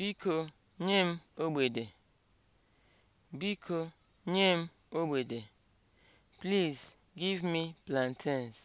Biko nye m ogede. Biko nye m ogede. Please give me plantains.